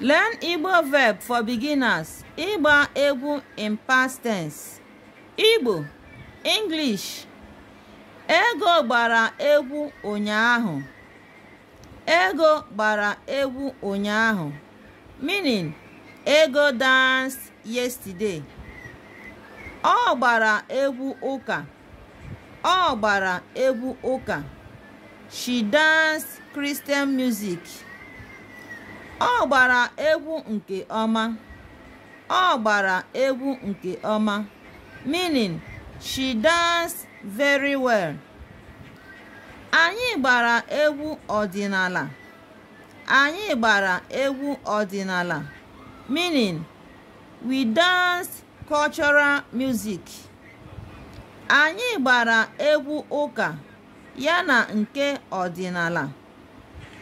Learn Igbo verb for beginners. Ịgba egwu in past tense. Igbo English Ego gbara egwu ụnyaahụ. Ego gbara egwu ụnyaahụ. Meaning, Ego danced yesterday. Ọ gbara egwu ụka. Ọ gbara egwu ụka. She danced Christian music. Ọ gbara egwu nke ọma. Ọ gbara egwu nke ọma. Meaning, she dance very well. Anyị gbara egwu ọdịnala. Anyị gbara egwu ọdịnala. Meaning, we dance cultural music. Anyị gbara egwu ụka yana nke ọdịnala.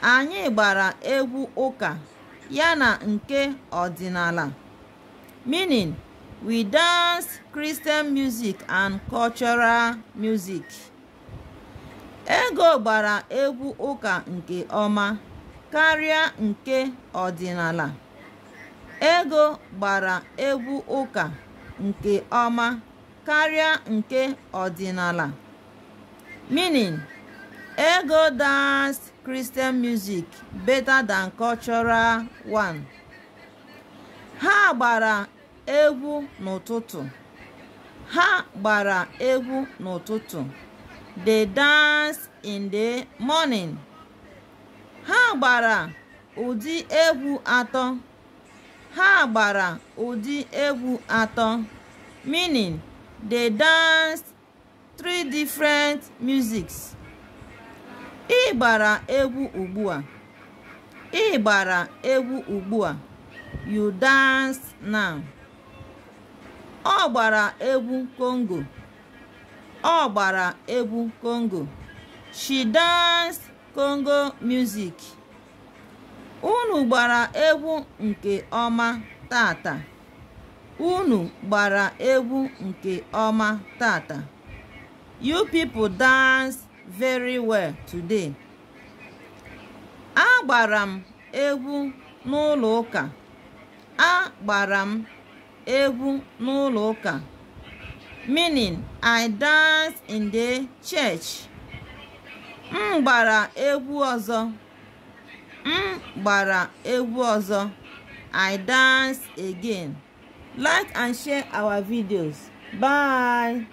Anyị gbara egwu ụka yana nke ọdịnala, meaning we dance Christian music and cultural music. Ego gbara egwu ụka nke ọma karịa nke ọdịnala. Ego gbara egwu ụka nke ọma karịa nke ọdịnala, meaning Ego dance Christian music better than cultural one. Ha gbara egwu n'ụtụtụ. Ha gbara egwu n'ụtụtụ. dey dance in the morning. Ha gbara ụdị egwu atọ. Ha gbara ụdị egwu atọ. Meaning, dey dance three different musics. Ịgbara egwu ugbua? Ịgbara egwu ugbua? You dance now. Ọ gbara egwu Congo, ọ gbara egwu Congo, she dance Congo music. Unu gbara egwu nke ọma tata. Unu gbara egwu nke ọma tata. You people dance!" very well today. Agbara m egwu n'ụlọ ụka. gbara m egwu n'ụlọ ụka. Meaning I dance in the church. M gbara egwu ọzọ. M gbara egwu ọzọ. I dance again. Like and share our videos. Bye.